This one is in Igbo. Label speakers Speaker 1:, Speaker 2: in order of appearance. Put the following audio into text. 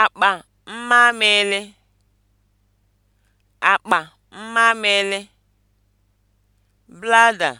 Speaker 1: akpa mmamịrị akpa mmamịrị bladder